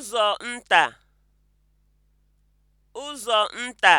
ụzọ nta ụzọ nta